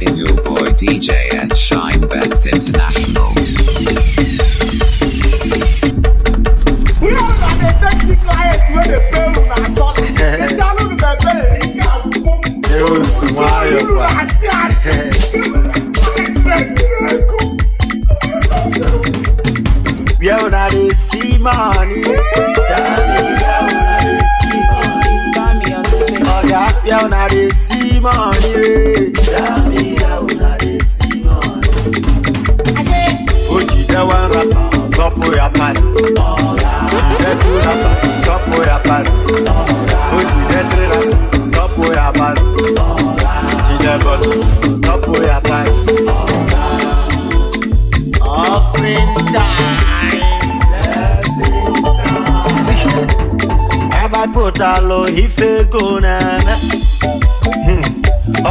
Is your boy DJ S. Shine Best International. We are not a sea money. Oh, yeah, we are not Top oya pari. Ẹ̀kú rapa tọ́pù oya pari. Ojì ẹ̀tí rapa tọ́pù oya pari. Ìjẹ̀bọ̀lù tọ́pù oya pari. Offering time. Hmm. Have I put Abagbotalo ife go nana.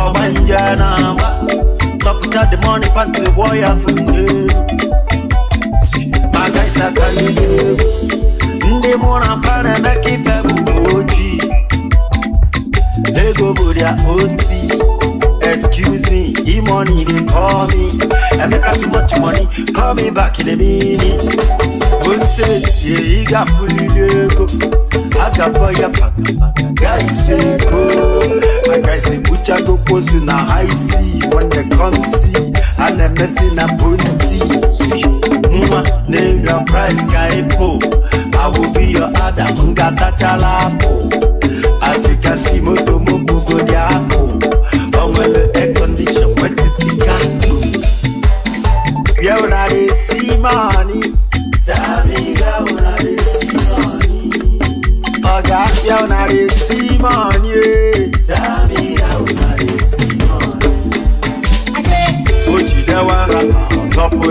Ọgbanja na hmm. top of the money pass the wire from you. sakali ndị mụ na fara emeka i f bụbu ojii ego bụ dia oti excuse me imoni d e c a l me emeka t c h money c a l me b a k in a minute osetie ịgafulile ego agabọ ya paka ise ego maka ise buchago posu na high sea when they come see a name your price, bonti Po, I will be your other. awụbi yo as you can see, moto m bugodi apụ o nwere ekondishon wetiti gatụ bịa una na-esi mani ọ ga-abịa una na-esi money.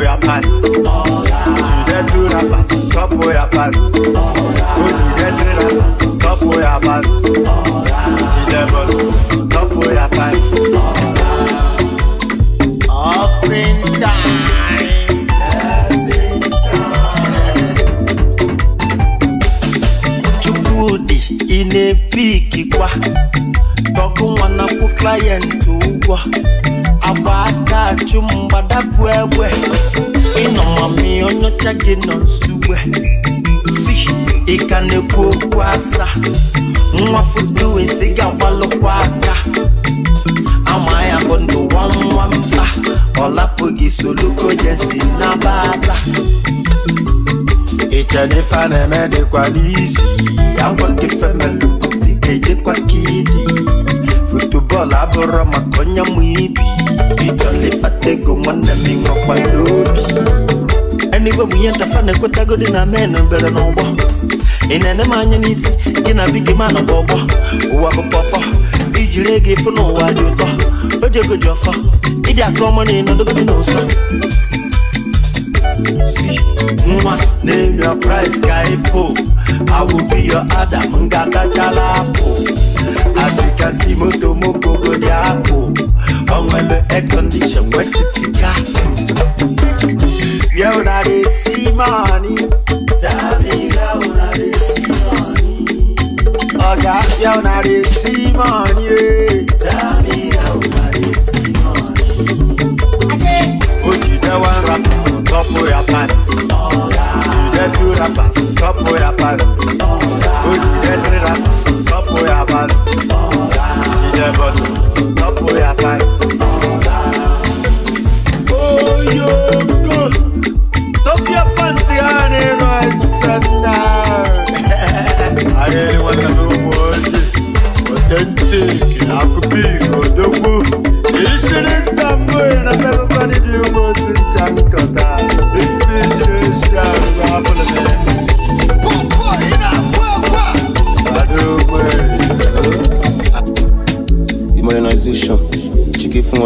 ya pan. Ojúde dúra pan, of your pan. Ojúde dúra pan, tọ́pọ̀ ya pan. Ojúde bọ̀, tọ́pọ̀ ya pan. in time. in a na-epi ikikwa. Tọkụ nwa na-akwụ klayenti ụgwọ ya achụ mgbadabụ egbe ịnọmami onye ọcha gị nọ nsugbe si ịka na-ekwu okwu asa nwa foto ezi ga-agbalụkwa aka ama ya bụ ndụ nwa mba ọ lapụghị soluko jesi nabata ichene ife a na-eme dịkwa n'izi agwa gị femelu ga-ejekwa ka idi futubọọlụ abụrụ maka onye mụ ibi bitole pategomwana mingokwa lobi anigwe muyentafane kwetagodi na meno bere n'ụgbọ ịnene m anya n'isi gị na bi gị ma nọkwa ọgbọ ụwa bụ pọpọ ijiri ego ịfụ n'ụwa dị ụtọ o ji ego ji ọfọ ịdị aka ọma na ịnọdogodi n'ụsọ si nwa name your price ka ịpụ I will be your Adam ngakachala apụ kasikasi moto moko kodiapo onwebe aircondition wechitika ye una dey see money tamila una dey see money oga ye una dey see eh. money ye tamila una dey see money. ojide one rapper top oya pant ojide two rappers top oya pant.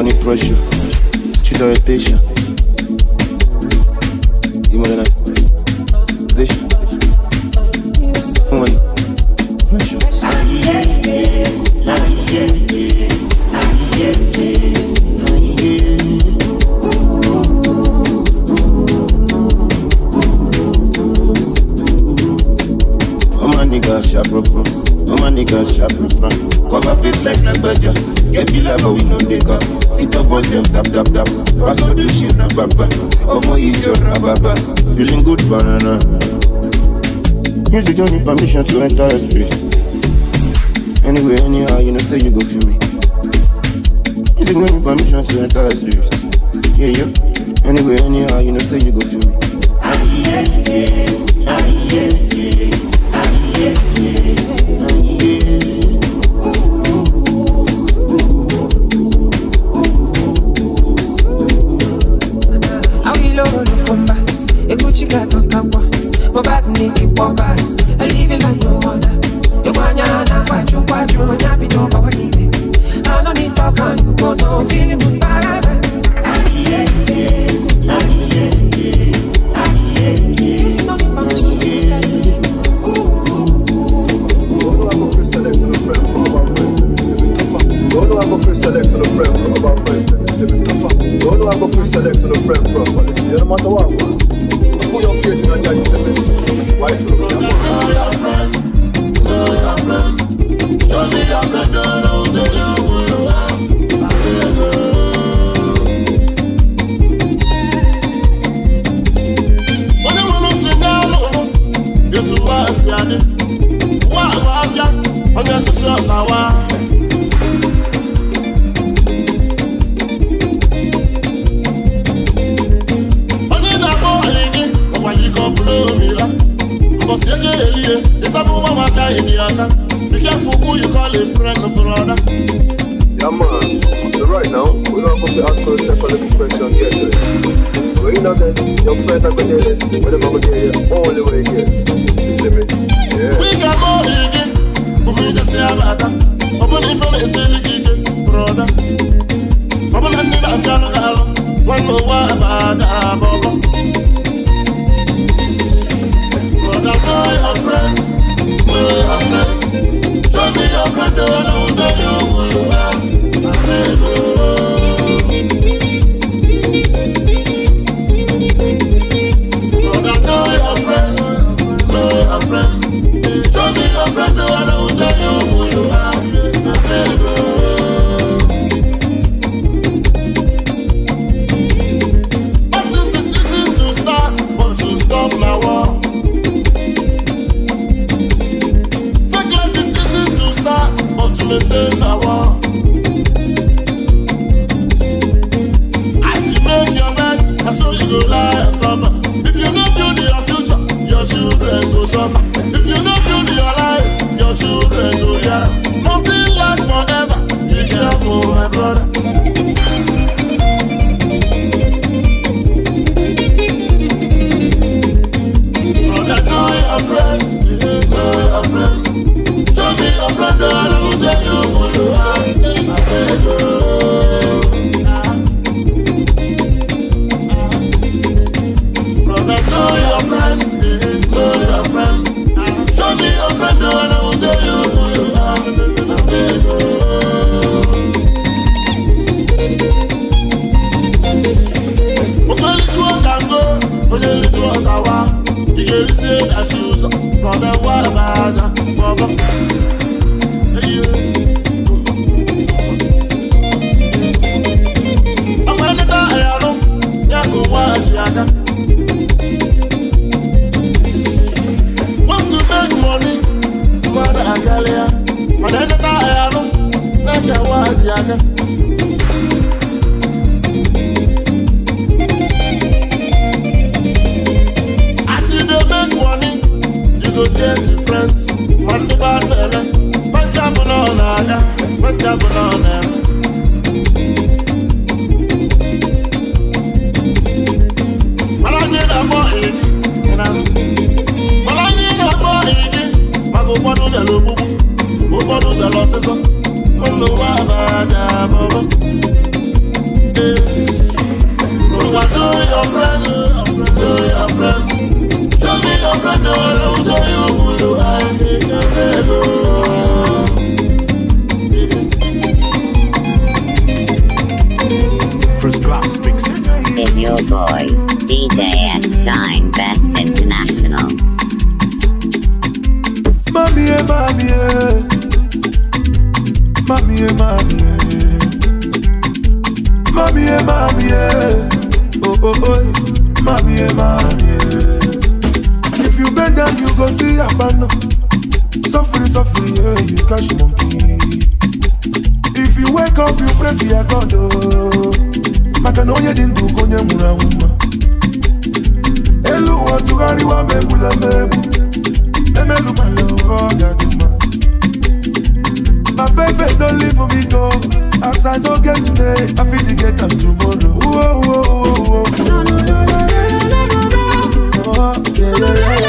money pressure, student do rotation. Music don't need permission to enter a space. Anyway, anyhow, you know, say you go feel me. Music don't need permission to enter a space. Yeah, yeah. Anyway, anyhow, you know, say you go feel me. Ah, yeah, yeah. Ah, yeah, yeah. Ah, yeah, yeah. Go back me the wamba I live it like no other You want ya na Kwachu kwachu Nyapi no bawa ibe I don't need talk and you go down Feeling good parada Aye, aye, aye, aye, aye, aye I go free select to the frame, bro, about friends, and it's even tougher. Go no, select to the frame, bro, but it don't matter what, man. creating a charity seven. Why so? Know your friend, know your friend. sort your boy, DJ S. Shine Best International. Mami yeah, mami yeah. mami yeah, mommy, yeah. Mommy, yeah, mommy, yeah. Oh, oh, oh. mami yeah, mommy, yeah. If you bend down, you go see Abano. Suffering, suffering, yeah, you catch monkey. If you wake up, you pray to your God, oh. maka na onye dị ndụ ka onye nwụrụ anwụ mma elu ụwa tụgharịwa ma egbula m egbu emelụbala ụwa ọ ga mma my baby don't leave for me go as i no get today i fit get am tomorrow. Whoa, whoa, whoa, whoa. Oh, yeah, yeah, yeah.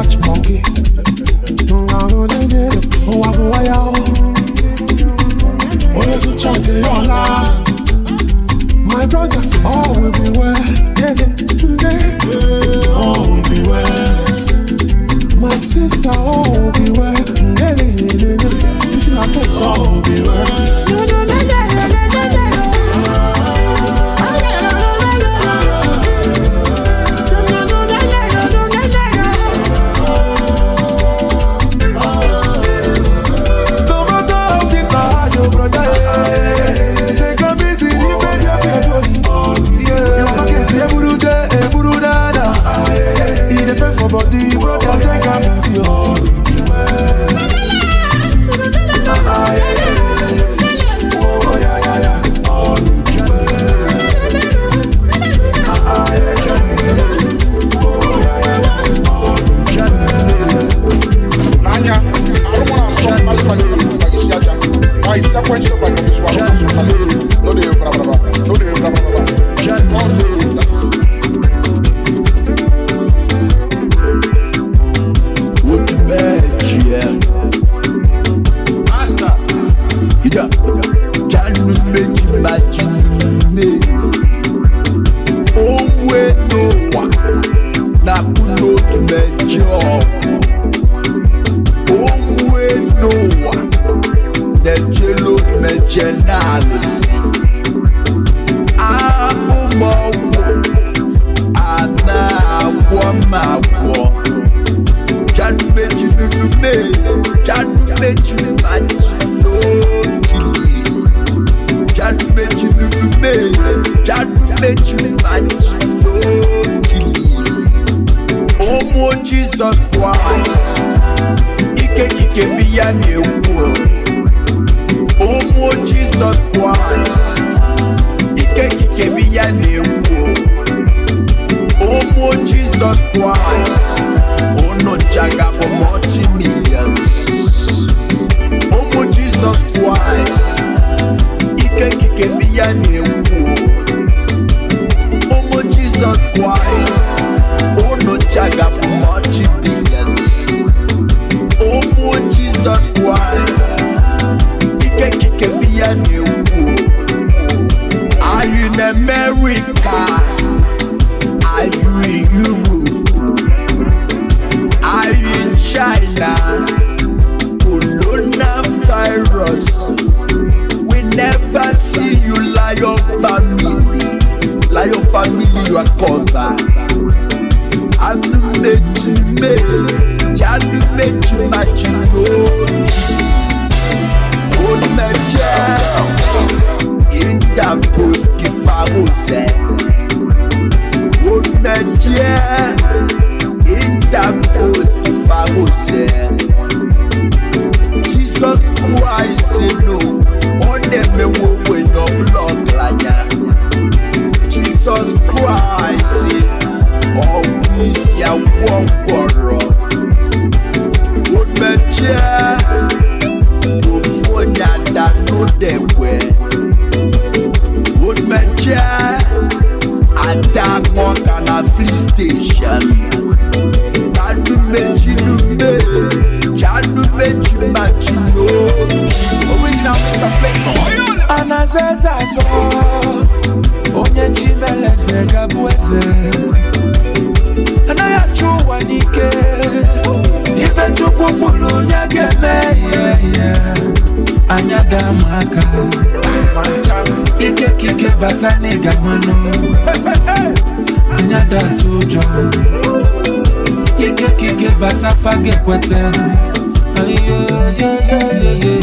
Watch monkey. baby. time. aka ikekike bata n'ịga mmanụ anya datụ ụjọ ikekike bata fage kweta ayoyoyoyoyoyo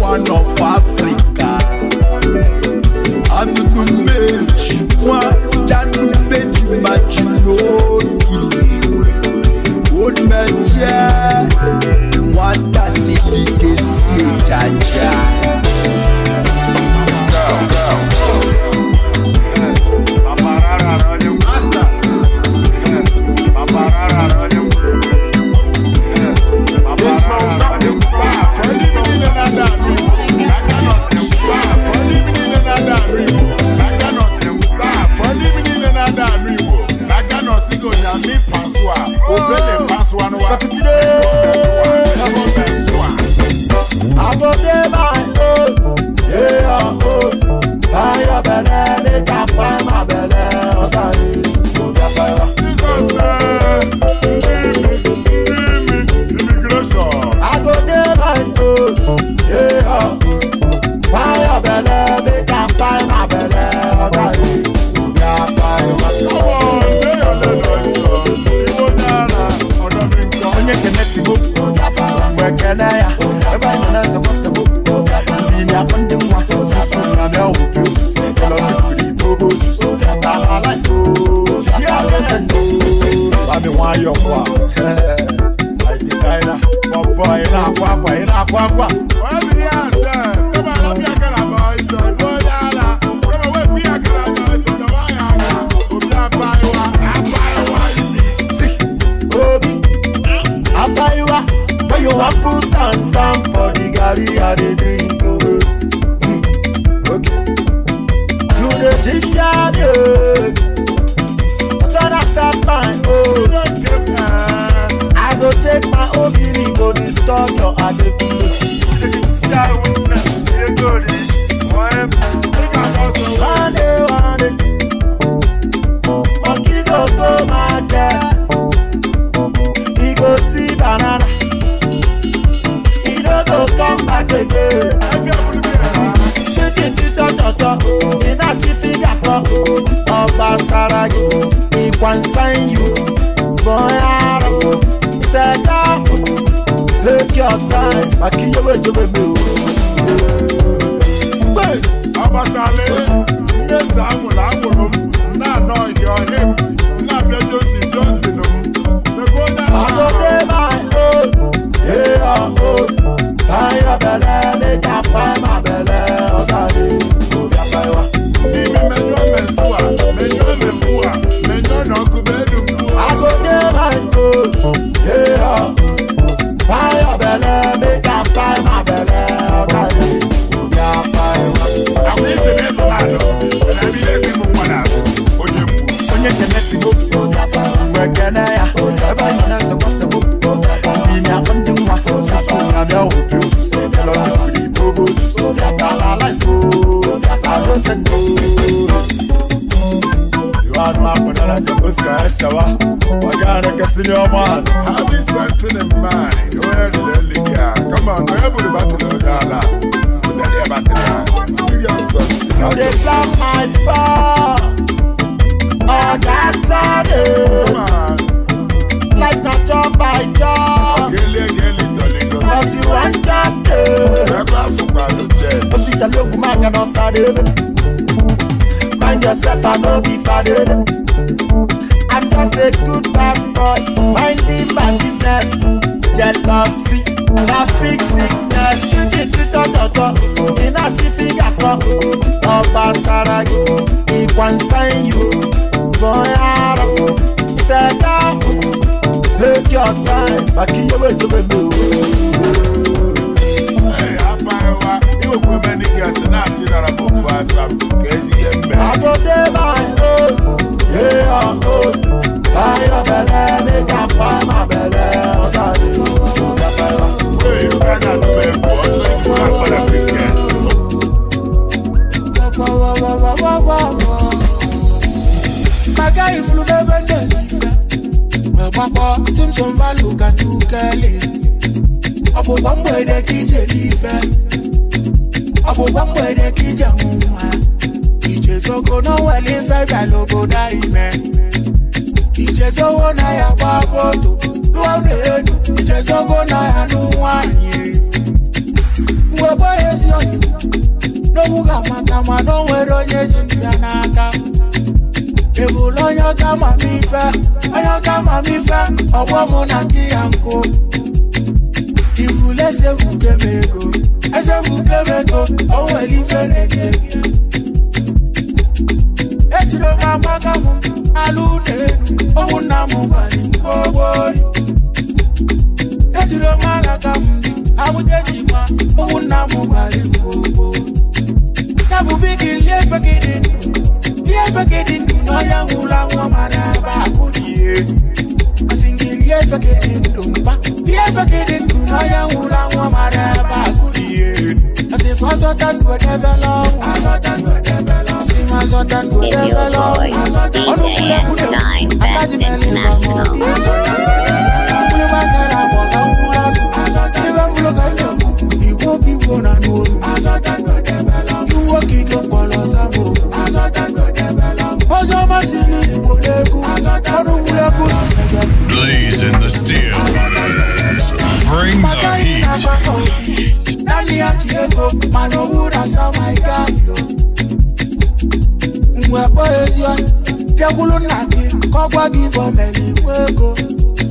one of But tá today kwakwa take your time akínyẹwò ìjọba mi o. abatale ndé sàmùlà àwòrán náà nọ ìyọ̀ him. man makwada na ta fuska ya sawa magana ka senior man have something in mind where the liquor come on where would about the dollar put that here about the serious now they plan my fall oh that's all come on like a job by job gele gele tole tole but you want job Never forgot to check. pa see the ó man tẹ̀lé ogun máa Find yourself, I no be father. I'm just a good bad boy, minding my business. Jealousy, na big sickness. Títí tọ́jọ́jọ́, iná jí fígà kan. Ọba sára yìí, ìwà one sign you Bọ́yá rọ̀, ìfẹ́ dáhùn. Take your time, bàkí your jẹ́ to the moon. àǹkó lọ́yàn ká mà mí fẹ́ lọ́yàn ká mà mí fẹ́ ọwọ́ mo nà kí àǹkó. Ìfù lẹ́sẹ̀ fù kémego, ẹsẹ̀ fù kémego, ọwọ́ èlì fẹ́rẹ̀ ní èmi. Ejiro máa pákà mú alúnẹ̀ẹ́nu, òun náà mú bàlí gbogbo rí. Ejiro máa làkà mú àwùjẹ́jì máa, òun náà mú bàlí gbogbo. Kábùbí kì í lé fẹ́ kí ni ifekedị ndụ n'ọya nwụla nwa mara aba o ma no wood as how my guy yo Mwe poezi wa Jekulu naki Kokwa give up any wego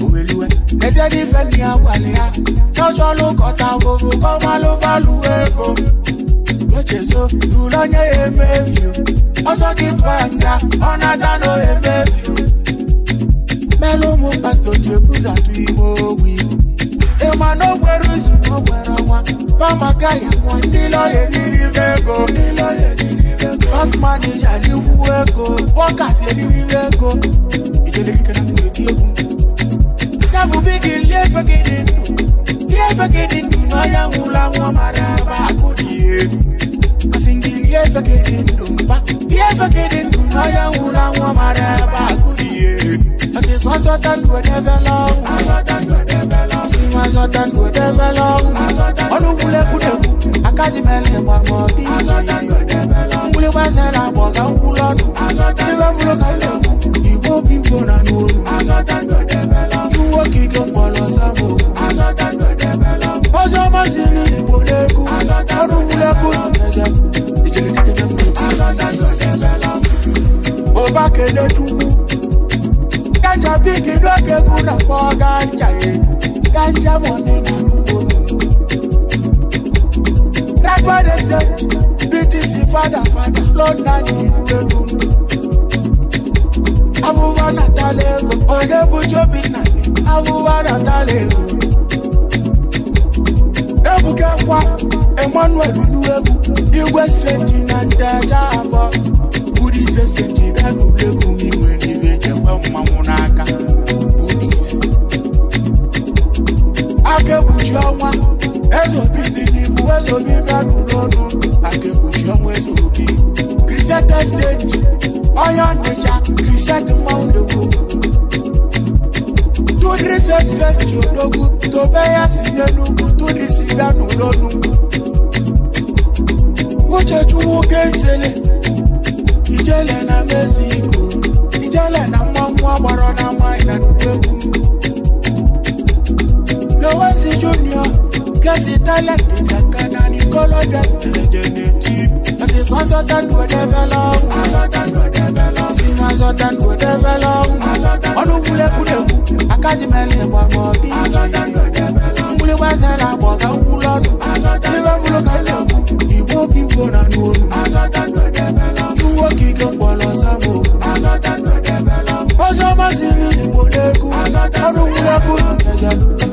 Uweliwe Nefye defend ni agwale ya Nocho lo kota vovo Koma lo valu wego Nochezo Dulanye emefyo Oso kitwanga Onatano emefyo Melo mo pasto Jekulu na tuimo wiko ma no gwere izu no gwere ọnwa pamaga ya nwọ ndị lọya eriribe ego bank manija liwu ego workers eriribe ego yabụ bigi lie efegide ndụ lie efegide ndụ n'ọya nwụla nwa mara aba akụ dị egwu asị gị lie efegide ndụ mba lie efegide ndụ n'ọya nwụla nwa mara aba akụ dị egwu asị gị ọzọta ndụ edebela azọta ndụ debe lọgwụ ọnụgwulegwudegwu akazimele gbakpọ dị iche mgbuli gbazara agbọ ga nkwulu ọnụ debe fụrụ ka ndegwu igbo obi igbo na n'olu juwo ka ike mkpọrọ zabo ozi ọma siri igbo n'egwu ọnụgwulegwu ndege ijere nkede mkpeti ụba kene tukwu ganja bigi n'oge gwu na kpọ ganja ya ganja money na kubomi. Lágbàdo jẹ BTC fadafada lọ́nà ní ìlú Èkó. Awúwá nàtàlẹ̀ Èkó, òye Bùjọ́bì nàbí, awúwá nàtàlẹ̀ Èkó. Ebuka kwa Emmanuel Oluwegu, Igwe Seji na Ndeja abọ. Budi Sese ji bịa n'Ulegwu m iwe n'ibe jekwa mmanwụ ọnwa ezobi dị n'ibu ezobi bịarụ n'ọnụ akekpuchi ọnwa ezobi kriset exchange onye ọnịcha kriset mmanwụ na-egwu tudris exchange odogwu tobe ya si n'enugwu tudris bịarụ n'ọnụ uchechukwu kensele ijele na mexico ijele na mmanwụ agbara na nwanyị na n'ugwu egwu violent Dakana ni koloda Generative I say consultant will develop Consultant will develop I say consultant will develop Ọdún wúlẹ̀ kúlẹ̀ wù Akásímẹ́lẹ̀ pàpọ̀ bí ìjì Wúlẹ̀ wá sẹ́ra pọ̀ ká wú lọ́nu Níbẹ̀ wúlò ká lè wù Ìbò bí wò nà nù ònù Túwó kíkẹ́ pọ̀ lọ sábò Ó sọ ma sí ní ìbòdégún Ọdún wúlẹ̀ kúlẹ̀ jẹjẹrẹ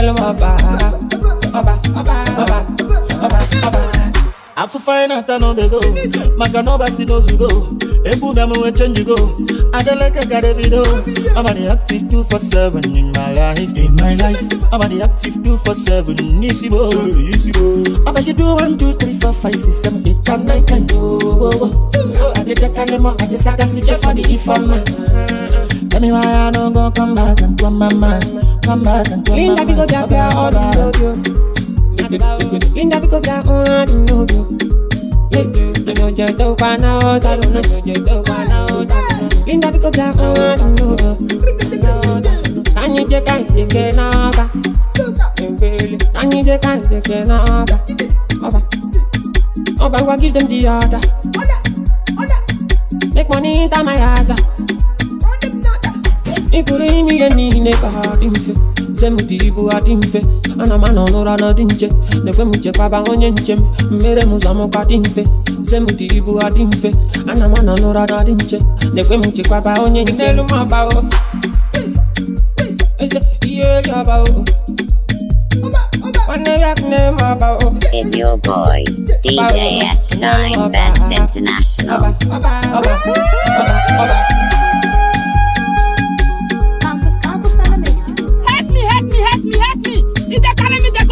girl waba Waba, waba, waba, waba afụfa anyị na-ata n'obego maka na ọbasi n'ozugo ebuga m wee chenjigo adeleke garebido amadi active 247 in my life in my life amadi active 247 n'isi bo isi bo amagido 1 2 3 4 5 6 7 8 9 10 owo adedekalemo for the informer. Tell me why I don't go come back and come my mind Come back and come Linda pick up your girl, all I love you. Linda pick up your own, I don't know you. I know you don't want out, I don't know you Linda pick up your own, I don't know you. Can you take and take it now, ba? Can you take give them the order. Make money into my house. ikpuru ime niile ka ha dị mfe nze ibu ha dị mfe ana m anọ n'ụra na dị nche na m chekwaba onye nche mmere m ụzọ dị mfe nze ibu ha dị mfe ana m anọ n'ụra na dị nche na m chekwaba onye n'elu m abawo ihe eri abawo Is your boy DJ S Shine Best International? If they carry me, they